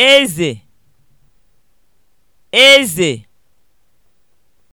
eze eze